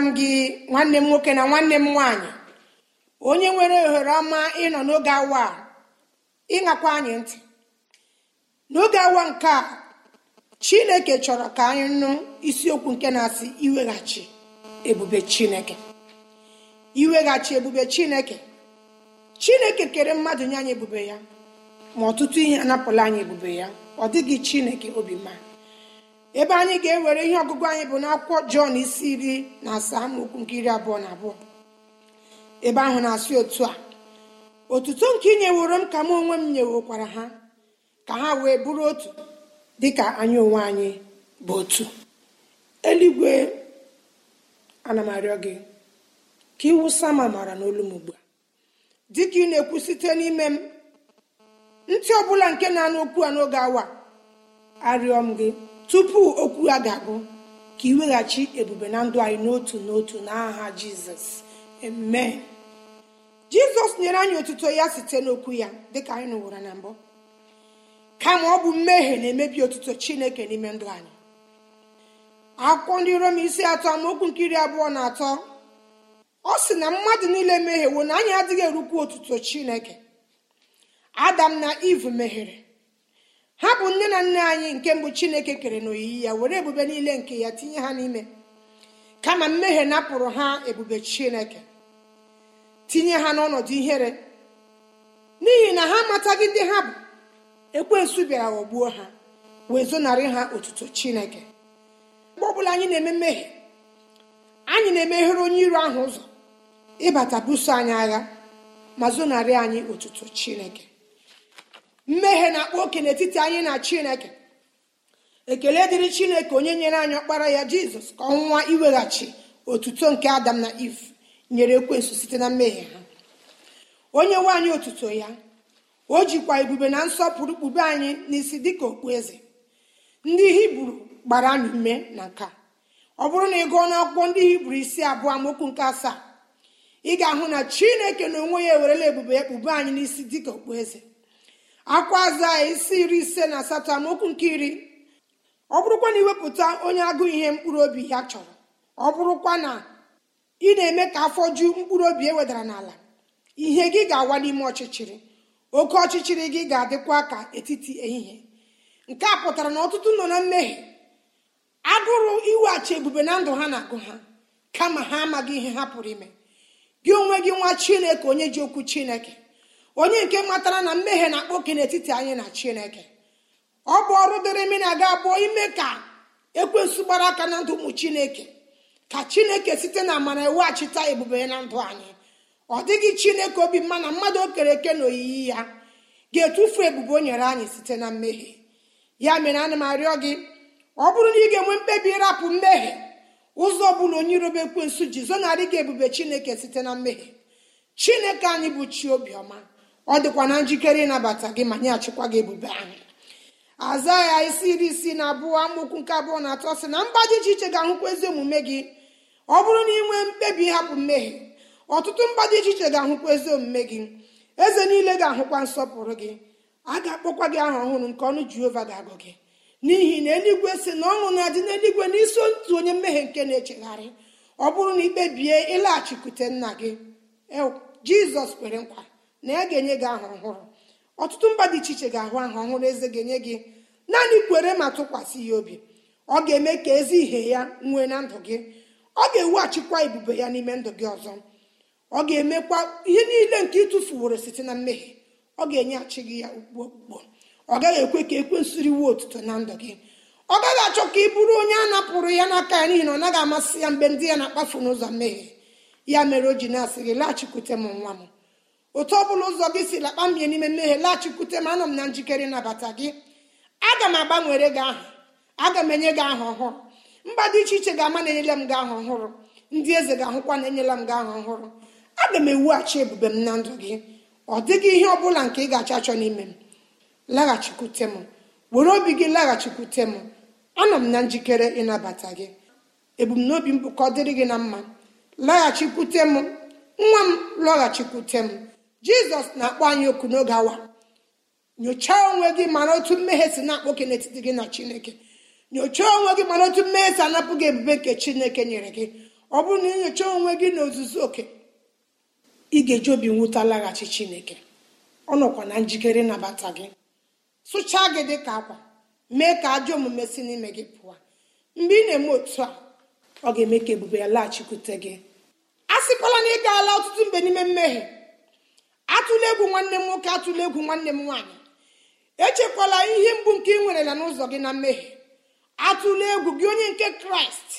m gị nwanne m nwoke na nwanne m nwaanyị onye nwere ohere ọma ịnọ n'oge awa ịṅakwa anyị ntị n'oge awa nke a chineke chọrọ ka anyị nụ isiokwu nke na-asị iweghachi ebube chineke iweghachi ebube chineke chineke kere mmadụ nye anyị ebube ya ma ọtụtụ ihe anapụla anyị ebube ya ọ dịghị chineke obi mma ebe anyị ga-ewere ihe ọgụgụ anyị bụ n'akwụkwọ jọn isi iri na asaa amaokwu nke iri abụọ na abụọ ebe ahụ na-asị otu a otuto nke ị nyeworo m ka m onwe m nyewokwara ha ka ha wee bụrụ otu dịka anyị onwe anyị bụ otu eluigwe ana m arịọ gị ka iwu ma mara n'olu m ugbu a dịka ị na-ekwu site n'ime m ntị ọbụla nke na-anụ okwu a n'oge awa arịọ m gị tupu okwu ya ga-abụ ka ị weghachi ebube na ndụ anyị n'otu n'otu n'aha jizọs amen jizọs nyere anyị otuto ya site n'okwu ya dịka anyị nụwara na mbụ kama ọ bụ mmehie na-emebi otuto chineke n'ime ndụ anyị akwụkwọ ndị rom isi atọ amaokwu nke iri abụọ na atọ ọ sị na mmadụ niile mehiewo na anyị adịghị erukwu otuto chineke adam na iv mehiere ha bụ nne na nna anyị nke mbụ chineke kere n'oyiyi ya were ebube niile nke ya tinye ha n'ime kama mmehie napụrụ ha ebube chineke tinye ha n'ọnọdụ ihere n'ihi na ha amataghị ndị ha bụ ekwensu bịara ghọgbuo ha wee zonarị ha otuto chineke mgbe ọbụla anyị na-eme mmehie anyị na-emeghere onye iro ahụ ụzọ ịbata buso anyị agha ma zonarị anyị otuto chineke mmehie na-akpa oke n'etiti anyị na chineke ekele dịrị chineke onye nyere anyị ọkpara ya jizọs ka ọnwụnwa iweghachi otuto nke adam na iv nyere ekwensu site na mmehie ha onye nwaanyị otuto ya o jikwa ebube na nsọpụrụ kpube anyị n'isi dịka okpueze ndị hibru gbara anyị ume na nka ọ bụrụ na ị gụọ n'akwụkwọ ndị hibru isi abụọ amokwu nke asaa ị ga-ahụ na chineke na onwe ya ewerela ebube ya kpube anyị n'isi dịka eze. akwa aza isi iri ise na asatọ amaokwu nke iri ọ bụrụkwa na iwepụta onye agụụ ihe mkpụrụ obi ya chọrọ ọ bụrụkwa na ị na-eme ka afọ ju mkpụrụ obi e wedara n'ala ihe gị ga-awa n'ime ọchịchịrị oke ọchịchịrị gị ga-adịkwa ka etiti ehihie nke a pụtara na ọtụtụ nọ na mmehie agụrụ iweghachi ebube na ndụ ha na-agụ ha kama ha amaghị ihe ha pụrụ ime gị onwe gị nwa chineke onye ji okwu chineke onye nke matara na mmehie na-akpa n'etiti anyị na chineke ọ bụ ọrụ dịrị mmiri aga abụọ ime ka ekwensu gbara aka na ndụ ụmụ chineke ka chineke site na amara eweghachita ebube na ndụ anyị ọ dịghị chineke obi mma na mmadụ o kere eke na oyiyi ya ga-etufu ebube o nyere anyị site na mmehie ya mere ana m arịọ gị ọ bụrụ na ị ga-enwe mkpebi ịrapụ mmehie ụzọ ọbụla onye irobe ekwensu ji zonarị gị ebube chineke site na mmehie chineke anyị bụ chi obiọma ọ dịkwa na njikere ịnabata gị ma nye achịkwa gị ebube ahụ aza ya isi iri isii na abụọ amaokwu nke abụọ na atọ sị na mba dị iche iche ga-ahụkwa ezi omume gị ọ bụrụ na ị nwee mkpebi ịhapụ mmehie ọtụtụ mba dị iche iche ga-ahụkwa ezi omume gị eze niile ga-ahụkwa nsọpụrụ gị a ga-akpọkwa gị aha ọhụrụ nke ọnụ jehova ga-agụ gị n'ihi na eluigwe si na ọṅụ na-adị n'eluigwe n'iso ntu onye mmehie nke na-echegharị ọ bụrụ na ikpebie ịlaghachikwute nna gị jizọs kwere nkwa na ya ga-enye gị aha ọhụrụ ọtụtụ mba dị iche iche ga-ahụ aha ọhụrụ eze ga-enye gị naanị kwere ma tụkwasị ya obi ọ ga-eme ka ezi ihe ya nwee na ndụ gị ọ ga achịkwa ebube ya n'ime ndụ gị ọzọ ọ ga-emekwa ihe niile nke ịtụfuworo site na mmehie ọ ga achị gị ya ugbo okpukpo ọ gaghị ekwe ka ekwensu riwe otuto na ndụ gị ọ gaghị achọ ka ị bụrụ onye a napụrụ ya n'aka ya n'ihi na ọ naghị amasị ya mgbe ndị ya na-akpafu n'ụzọ mmehie ya mere o ji na-asị gị laghachikwute m nwa m otu ọ bụla ụzọ gị si lakpa mbie n'ime mmehie laghachikwute m anọ m na njikere ịnabata gị aga m agbanwere gị aha aga m enye gị aha ọhụrụ mba dị iche iche ga-ama na-enyela m gị aha ọhụrụ ndị eze ga-ahụkwa na-enyela m gị aha ọhụrụ aga m ewughachi ebube m na ndụ gị ọ dịghị ihe ọ bụla nke ị ga-achọ achọ n'ime m laghachikwute m were obi gị laghachikwute m anọ m na njikere ịnabata gị ebumnobi m bụ ka ọ dịrị gị na mma laghachikwute m nwa m lọghachikwute m jizọs na-akpọ anyị oku n'oge awa nyochaa onwe gị mara otu mmehie si na ke n'etiti gị na chineke nyochaa onwe gị mara otu mmehie si anapụ gị ebube nke chineke nyere gị ọ bụrụ na ịnyocha onwe gị n'ozuzu oke ị ga-eji obi nwụta laghachi chineke ọ nọkwa na njikere nabata gị sụchaa gị dị ka akwa mee ka ajọ omume si n'ime gị pụọ mgbe ị na-eme otu a ọ ga-eme ka ebube ya laghachikwute gị a sịkwala na ị gaala ọtụtụ mgbe n'ime mmehie atụla egwu nwanne m nwoke atụla egwu nwanne m nwaanyị echekwala ihe mgbu nke ị nwerela n'ụzọ gị na mmehie atụla egwu gị onye nke kraịst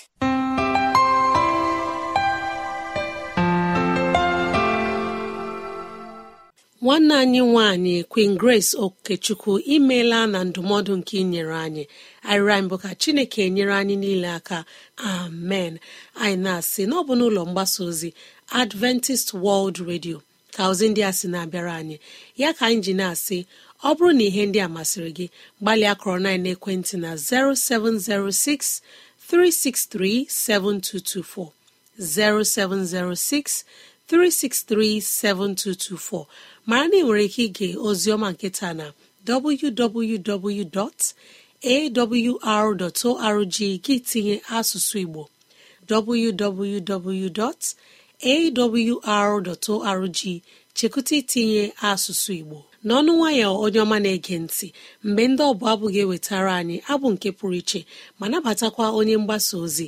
nwanne anyị nwanyị queen grace okechukwu imeela na ndụmọdụ nke inyere anyị anyị bụ ka chineke nyere anyị niile aka amen anyị na-asị n'ọbụ n'ụlọ mgbasa ozi adventist world radio ka ozi ndị a sị na-abịara anyị ya ka anyị ji na-asị ọ bụrụ na ihe ndị a masịrị gị gbalịa kọrọ na ekwentị na 0706 363 7224 0706 363 7224 mara na ị nwere ike ige oziọma nketa na www.awr.org gị tinye asụsụ Igbo www. awr.org chekwụta itinye asụsụ igbo n'ọnụ nwayọọ onye ọma na-ege ntị mgbe ndị ọbụ abụ ga-ewetara anyị abụ nke pụrụ iche ma nabatakwa onye mgbasa ozi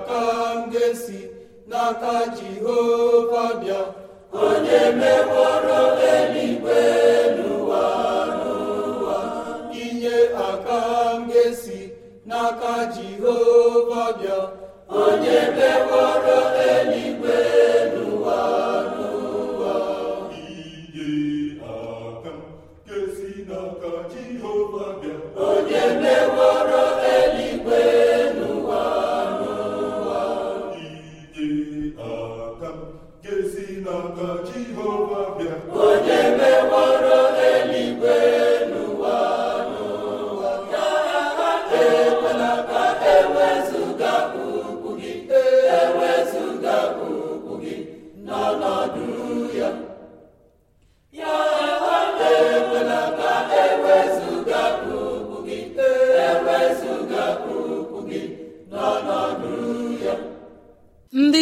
aka m ga-esi n'aka jehova bịa onye meworo eluigwe n'ụwa n'ụwa inye aka m ga-esi n'aka jehova bịa onye meworo eluigwe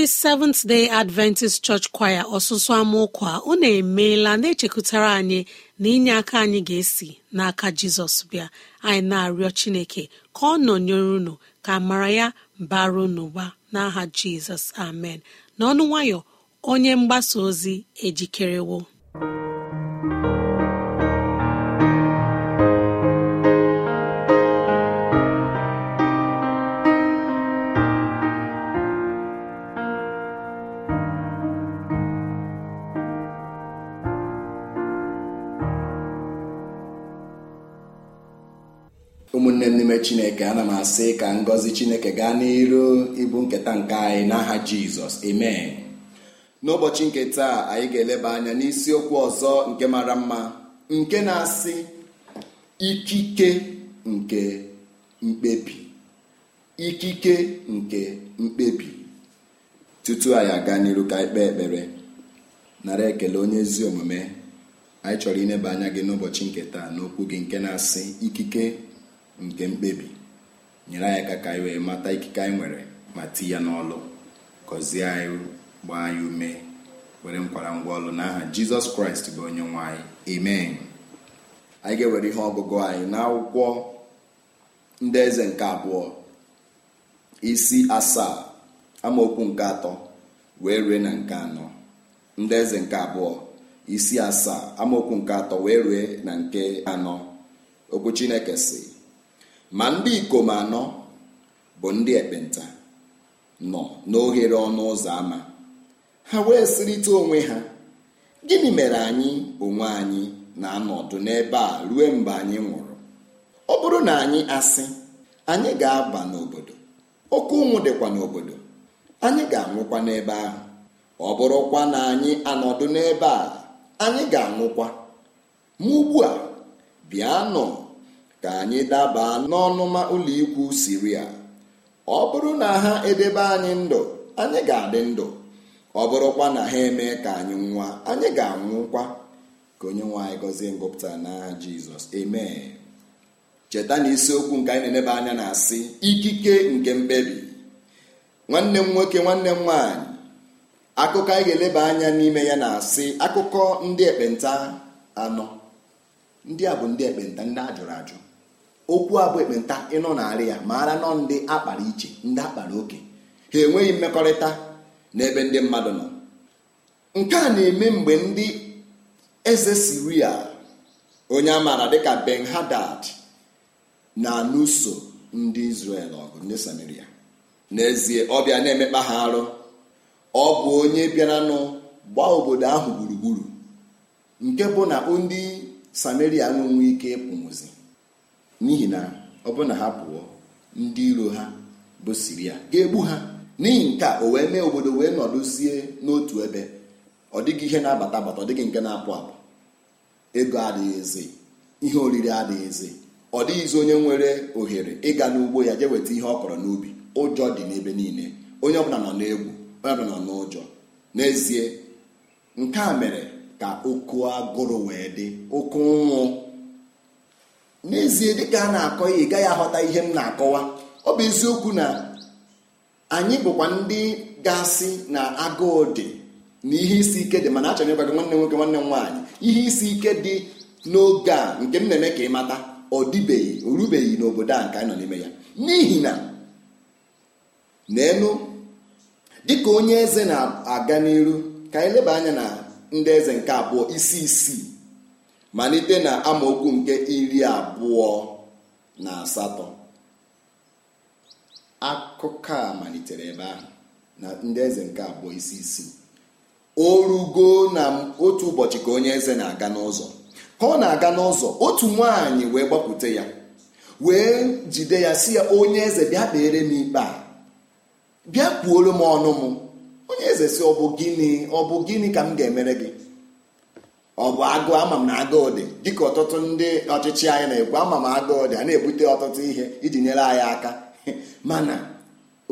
seventh day adventist church kwaya ọsụsụ amaụkwa unu emeela na-echekụtara anyị na inye aka anyị ga-esi n'aka jizọs bịa anyị na-arịọ chineke ka ọ nọnyere unu ka mara ya bara n'ụba n'aha jizọs amen n'ọnụ nwayọ onye mgbasa ozi ejikerewo ekele n'ime chineke ana m asị ka ngọzi chineke gaa n'iru ịbụ nketa nke anyị n'aha jizọs amen n'ụbọchị nke taa anyị ga-eleba anya n'isiokwu ọzọ nke mara mma nke na-asị ikike nke mkpebi ikike nke mkpebi tutu anyị aga n'iru ka anyị kpee ekpere nara ekele onye ezi omume anyị chọrọ ileba anya gị n'ụbọchị nke taa n'okwu gị nke na-asị ikike nke mkpebi nyere anyị aka ka anyị wee mata ikike anyị nwere ma ti ya n'ọlụ gọzie anyị gbaa anyị ume were nkwara ngwa ọlụ n'aha jizọs kraịst bụ onye nwe anyị amen anyị ga-ewere ihe ọgụgụ anyị n'akwụkwọ ndị eze nke abụọ isi asaa amaokwu nke atọ wee rue na nke anọ ndị eze nke abụọ isi asaa amaokwu nke atọ wee rue na nke anọ okwu chineke si ma ndị ikom anọ bụ ndị ekpenta nọ n'oghere ọnụ ụzọ ama ha wee sịrịta onwe ha gịnị mere anyị onwe anyị na-anọdụ n'ebe a ruo mgbe anyị nwụrụ ọ bụrụ na anyị asị anyị ga-aba n'obodo oke ụmụ dịkwa n'obodo anyị ga-anwụkwa n'ebe ahụ ọ bụrụkwa na anyị anọdụ n'ebe a anyị ga-anwụkwa ma ugbu a bịa nọ ka anyị daba n'ọnụma ụlọikwu siria ọ bụrụ na ha edebe anyị ndụ anyị ga-adị ndụ ọ bụrụkwa na ha eme ka anyị nwa anyị ga-anwụkwa ka onye nwe anyị gọzie ngụpụta na jizọs amen cheta na isiokwu nke anyị na-eneba anya na-asị ikike nke mkpebi nwanne m nwoke nwanne m nwaanyị akụkọ anyị ga-eleba anya n'ime ya na-asị akụkọ ndị ekpenta anọ ndị a bụ ndị ekpenta ndị ajụrụ ajụ okwu abụ ekpenta ịnọ narị ya maara nọ ndị akpara iche ndị akpara oke ha enweghị mmekọrịta n'ebe ndị mmadụ nọ nke a na-eme mgbe ndị eze siria onye amaara dịka ben hadad na-alụso ndị izrel ọgụ ndị samaria n'ezie ọ bịa na-emekpa ha arụ ọ bụ onye bịara nụ gbaa obodo ahụ gburugburu nke bụ na ndị samaria nwere ike ịpụ n'ozi n'ihi na ọ bụrụ na ha pụọ ndị iro ha bụ siria ga-egbu ha n'ihi nke a o wee mee obodo wee nọdụzie n'otu ebe ọ dịghị ihe na-abata abata ọ dịghị nke na-apụ apụ ego adịghị eze ihe oriri adịghị eze ọ dịghịzi onye nwere ohere ịga n'ugbo ya jee nweta ihe ọ kọrọ n'ubi ụjọ dị n'ebe niile onye ọbụla nọ n'egwu onye ọbụla nọ n'ụjọ n'ezie nke a mere ka oku agụrụ wee dị oke nwụ. n'ezie dịka a na-akọ ya ị gaghị aghọta ihe m na-akọwa ọ bụ eziokwu na anyị bụkwa ndị ga-asị na agụụ dị na ihe isi ike dị mana achọrọ ịgwa gị nwanne nwoke nwanne nwaanyị ihe isi ike dị n'oge a nke m na-eme ka ị mata ọ dịbeghị o rubeghị n'obodo a nke anyị nọ n'ime ya n'ihi na n'elu dịka onye eze na-aga n'iru ka anyị leba anya na ndị eze nke abụọ isi isii malite na amaokwu nke iri abụọ na asatọ akụkọ a malitere ebe ahụ na ndị eze nke abụọ isi isi o rugo na otu ụbọchị ka onye eze na-aga n'ụzọ ka ọ na-aga n'ụzọ otu nwaanyị wee gbapụta ya wee jide ya si ya onye eze bịa kpeere m ikpe a bịa kwuoro m ọnụ m onye eze si ọ bụ gịnị ọ bụ gịnị ka m ga-emere gị ọ bụ agụ ama m na agụụ dị dịka ọtụtụ ndị ọchịchị anyị na-ekwu ama m agụụ dị a na-ebute ọtụtụ ihe iji nyere anyị aka mana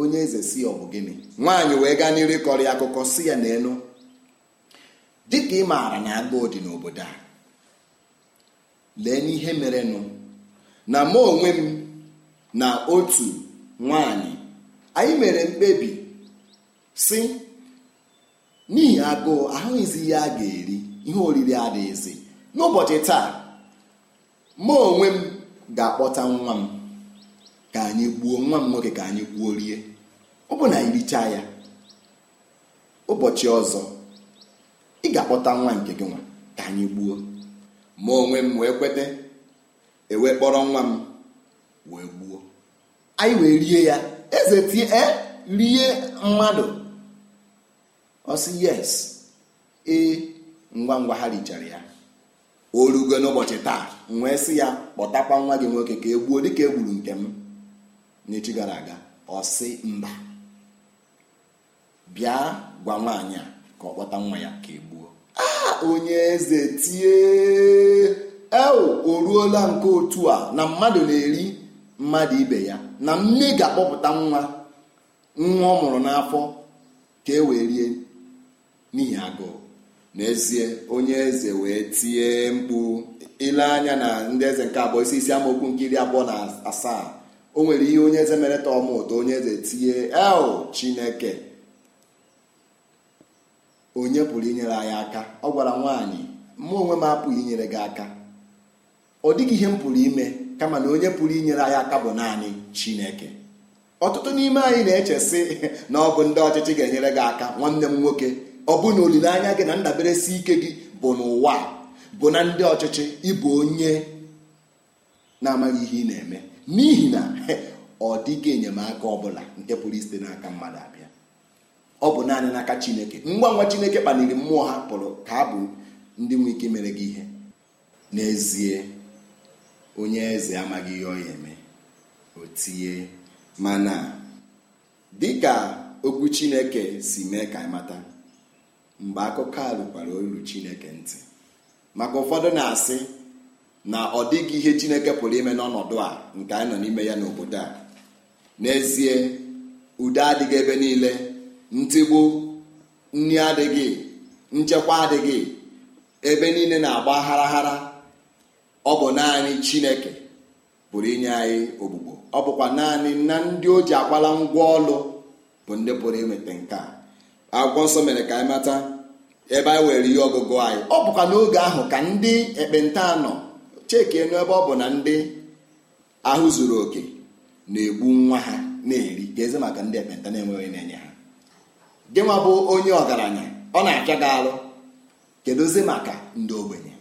onye eze si ọ bụ gịnị nwaanyị wee gaa n'iri kọrọ ya akụkọ si ya n'elu dịka ị maara na agụụ dị n'obodo a lee n'ihe merenụ na mụ onwe m na otu nwaanyị anyị mere mkpebi si n'ihi agụụ ahụghịzi ihe a ga-eri ihe oriri adịghịzi n'ụbọchị taa ma onwe m ga-akpọta nwa m ka anyị gbuo nwa m nwoke ka anyị gbuo rie ọ bụ na ịricha ya ụbọchị ọzọ ị ga-akpọta nwa nke gị nwa ka anyị gbuo ma onwe m wee kweta ewee kpọrọ nwa m wee gbuo anyị wee rie ya eze tie e, rie mmadụ ọ yes ee ngwa ngwa ha richara ya o rugo n'ụbọchị taa m wee sị ya kpọtakwa nwa gị nwoke ka e gbuo dịka e gburu nke m n'echi gara aga ọ mba bịa gwa nwaanyị a ka ọ kpọta nwa ya ka e gbuo ah, onye eze tie ewu o ruola nke otu a na mmadụ na-eri mmadụ ibe ya na mme ga-akpọpụta nwa nwa ọ mụrụ n'afọ ka e wee rie n'ihi agụụ n'ezie onye eze wee tie mkpu ile anya na ndị eze nke abụọ isi isi amaokwu nke iri abụọ na asaa o nwere ihe onye eze mere tọm ụtọ onye eze tie el chineke onye pụrụ inyere anyị aka ọ gwara nwaanyị mụ onwe m apụghị inyere gị aka ọ dịghị ihe m pụrụ ime kama na onye pụrụ inyere anyị aka bụ naanị chineke ọtụtụ n'ime anyị na echesị na ọ bụ ndị ọchịchị ga-enyere gị aka nwanne m nwoke ọ bụ na olileanya gị na ndaberesi ike gị bụ n'ụwa bụ na ndị ọchịchị ịbụ onye na-amaghị ihe ị na-eme n'ihi na ọ dịghị enyemaka ọbụla nke pụrụ isite n'aka mmadụ abịa ọ bụ naanị n'aka chineke ngwa ngwa chineke kpaliri mmụọ ha pụrụ ka ha bụ ndị nwe ike mere gị ihe n'ezie onye eze amaghị ihe ọ ya eme o tinye mana dịka okwu chineke si mee ka anyị mata mgbe akụkọ a rụkwara olu chineke ntị maka ụfọdụ na-asị na ọ dịghị ihe chineke pụrụ ime n'ọnọdụ a nke anyị nọ n'ime ya n'obodo a n'ezie udo adịghị ebe niile ntigbu nri adịghị nchekwa adịghị ebe niile na-agba agharaghara ọ bụ naanị chineke pụrụ inye anyị ogbugbo ọ bụkwa naanị na ndị o ji akwala ngwa ọlụ bụ ndị pụrụ imete nke a akwụkwọ nsọ mere ka anyị mata ebe anyị were ihe ọgụgụ anyị ọ bụkwa n'oge ahụ ka ndị ekpenta nọ cheke enu ebe ọ bụ na ndị ahụ zuru oke na-egbu nwa ha na-eri ga-eze maka ndị ekpenta na-enweghị na-enye ha gị nwa bụ onye ọgaranya ọ na acha gị alụ maka ndị ogbenye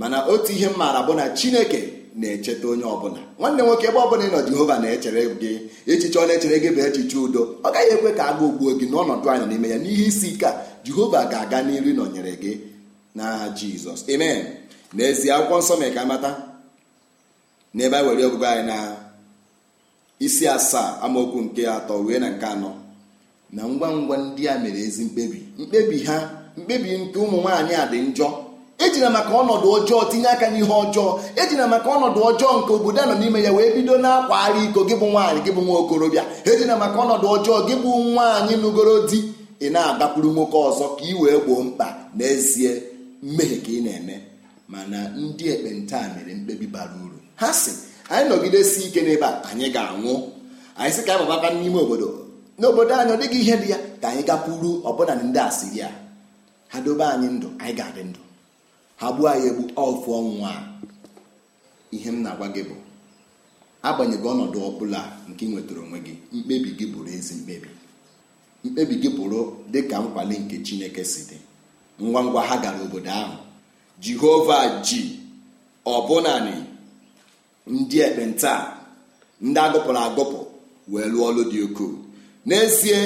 mana otu ihe m maara bụ na chineke na-echeta onye ọbụla nwanne nwoke ebe ọbụla ịnọ jehova na-echere gị echiche ọ na-echere gị bụ echiche udo ọ gaghị ekwe ka agụụ gbuo gị n'ọnọdụ anyị n'ime ya n'ihe isi ike a jehova ga-aga n'iri nọnyere gị na jizọs amen n'ezie akwụkwọ nsọ mere ka amata n'ebe a were ọgụgụ anyị na isi asaa amaokwu nke atọ wee na nke anọ na ngwa ngwa ndị a mere ezi mkpebi mkpebi ha mkpebi nke ụmụ nwaanyị a dị njọ ejina maka ọnọdụ ọjọọ tinye aka n'ihe ọjọọ ejina maka ọnọdụ ọjọọ nke obodo anọ n'ime ya wee bido na-akwagharị iko gị bụ nwaanyị gị bụ nwa okorobịa ejina maka ọnọdụ ọjọọ gị bụ nwaanyị nụgoro di ị na-adakwuru nwoke ọzọ ka ị wee gboo mkpa n'ezie mmehie ka ị na-eme mana ndị ekpenta mere mkpebi bara uru ha sị anyị nọgidesi ike n'ebe a anyị ga-anwụ anyị sị ka anyị babata n'ime obodo n'obodo anyị ọ dịghị ihe dị ya ka anyị gakwuru ọbụna ndị asịrịa ha dobe anyị ndụ anyị ga-adị ndụ ha gbuo anyị egbu ọfụ ọnwụ a ihe m na-agwa gị bụ agbanyeghị ọnọdụ ọbụla nke ị nwetara onwe gị mkpebi gị bụrụ ezi mkpebi mkpebi gị bụrụ dị ka nkwale nke chineke si dị ngwa ngwa ha gara obodo ahụ jehova ji ọbụnani ndị ekpenta ndị agụpụrụ agụpụ wee lụọ ọrụ dị ukwuu n'ezie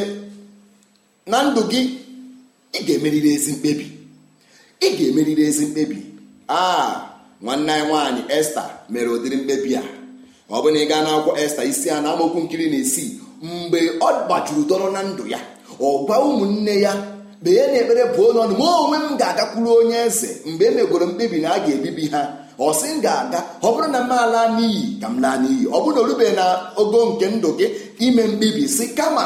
na ndụ gị ị ga-emeriri ezi mkpebi ị ga-emeriri ezi mkpebi a nwanne anyị nwaanyị esta mere ụdịrị mkpebi a ọ bụ na ị gaa na-akwụkwọ esta isi a na amokwu nkiri na esi mgbe ọ gbajuru dọrọ na ndụ ya ọ gwa ụmụnne ya kpee na ekpere bụ n'ọnụ ọnụ ma onwe m ga-agakwuru onye eze mgbe e megoro mkpebi na a ga-ebibi ha ọ sị m ga-aga ọ bụrụ na m ala n'iyi ka m laa n'iyi ọ bụrụ na o rubeghị na ogo nke ndụ gị ime mkpebi si kama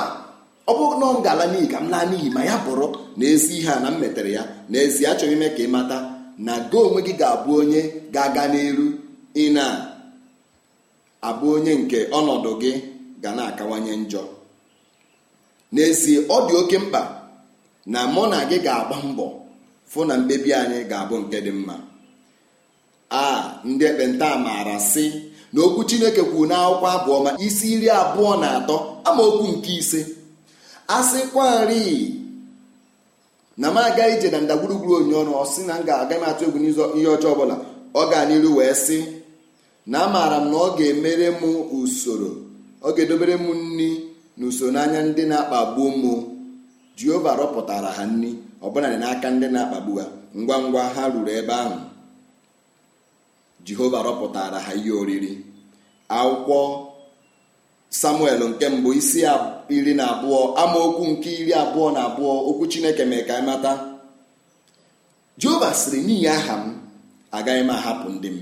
ọ bụrụ na ọ ga-ala ka m laa n'iyi ma ya bụrụ na ezi ihe a na m metere ya n'ezi achọghị ime ka ị mata na go onwe gị ga-abụ onye ga-aga n'elu ị na-abụ onye nke ọnọdụ gị ga na-akawanye njọ n'ezie ọ dị oke mkpa na mụ na gị ga-agba mbọ fụ na mkpebi anyị ga-abụ nke dị mma a ndị ekpenta maara sị na okwu Chineke kwuru n'akwụkwọ abụọ ma isi iri abụọ na atọ amaokwu nke ise asịkwarị na m aga ije na ndagwurugwuru onye ọnụ ọ sị na m ga aga m atụ egwu ihe ọjọọ ọbụla ọ gaa n'iru wee sị na amaara m na ọ ga-emere m usoro ọ ga-edobere m nri na usoro n'anya ndị na-akpagbu m jehova rọpụtara ha nri ọbụla dị n'aka ndị na-akpagbu ha ngwa ngwa ha ruru ebe ahụ jehova rọpụtara ha ihe oriri akwụkwọ samuel nke mbụ isi iri na abụọ amaokwu nke iri abụọ na abụọ okwu chineke mee ka mata jehova sịrị n'ihi aha m agaghị m ahapụ ndị m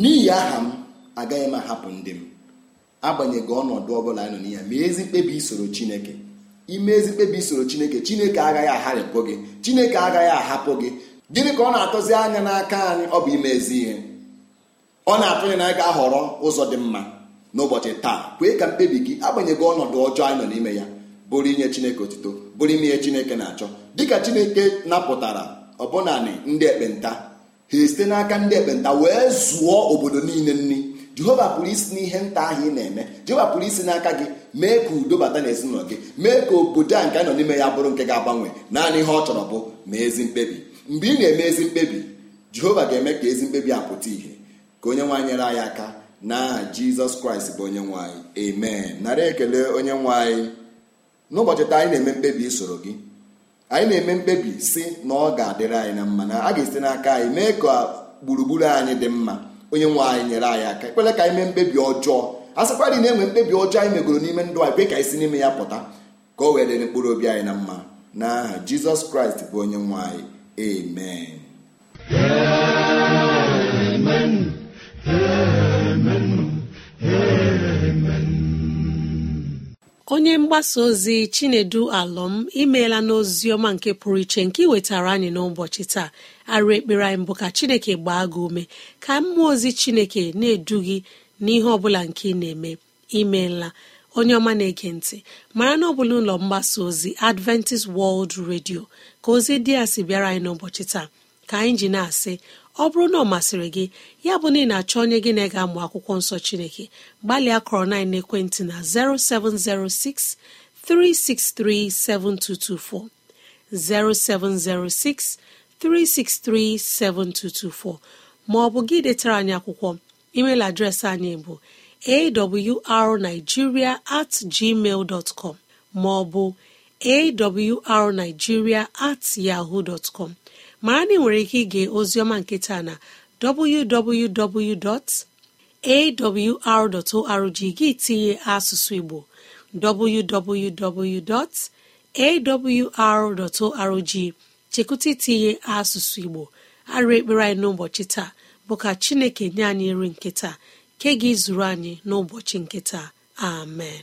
n'ihi aha m agaghị m ahapụ ndị m agbanyeghị ọnọdụ ọbụla anyị nọ n'ihe ma ezi mkpebi isoro chineke ime ezi mkpebi isoro chineke chineke agaghị agharịpụ gị chineke agaghị ahapụ gị gịnị ka ọ na-atụzi anya n'aka anyị ọ bụ ime ezi ihe ọ na-atụ anyị n'aka ahọrọ ụzọ dị mma n'ụbọchị taa kwee ka mkpebi gị agbanyeghị ọnọdụ ọjọọ anyị nọ n'ime ya bụrụ inye chineke otito bụrụ ime ihe chineke na-achọ dịka chineke napụtara ọbụnanị ndị ekpenta ha esite n'aka ndị ekpenta wee zụọ obodo niile nri jehova pụrụ isi n'ihe nta ahụ ị na-eme jehova pụrụ isi n'aka gị mee ka udo bata n'ezinụlọ gị mee ka obodo a nke anọ n'ime ya bụrụ nke ga-agbanwe naanị ihe ọ chọrọ bụ ma ezi mkpebi mgbe ị na-eme ezi mkpebi jehova ga-eme ka ezi mkpebi apụta ìhè ka onye nwaanyị nyere anyị aka n'aha jizọs kraịst bụ onye nwanyị amen narị ekele onye nwanyị n'ụbọchị taa anyị na-eme mkpebi isoro gị anyị na-eme mkpebi si na ọ ga-adịrị anyị na mma na a ga esi n'aka anyị mee ka gburugburu anyị dị mma onye nwe anyị nyere anyị aka ekpere ka anyị mee mkpebi ọjọọ a sịkwa dị na-enwe mkpebi ọjọọ anyị megoro n'ime ndụ anyị kwe ka anyị si n'ime ya pụta ka o wee dịrị mkpụrụ obi anyị na mma n'aha jizọs kraịst bụ onye nwe anyị amen amen amen onye mgbasa ozi chinedu alọm imeela n'ozi ọma nke pụrụ iche nke iwetara anyị n'ụbọchị taa arụ ekpere anyị mbụ ka chineke gbaa gị ume ka mmụọ ozi chineke na-edu gị n'ihe ọbụla nke ị na-eme imeela onye ọma na-ege ntị mara na ọbụla ụlọ mgbasa ozi adventist world radio ka ozi dị ya si bịara anyị n'ụbọchị taa ka anyị ji na-asị ọ bụrụ na ọ masịrị gị ya bụ na ị na-achọ onye gị na -ega akwụkwọ nsọ Chineke gbalịa kọrọ na ekwentị na 0706 363 7224 0706 363 7224 ma ọ bụ gị detara anyị akwụkwọ email adreesị anyị bụ arigiria at gmail com ma ọ bụ awrnigeria at yahoo dot mara na ị nwere ike ige ozioma nketa na www.awr.org gị tinye asụsụ igbo www.awr.org chekụta itinye asụsụ igbo arụ ekpere anyị n'ụbọchị taa bụ ka chineke nye anyị nri nketa nke gị zuru anyị n'ụbọchị nketa amen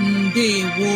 ndewo